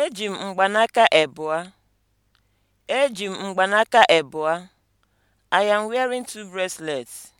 Eji m mgbanaka ebua. Eji m mgbanaka ebua. I am wearing two bracelets.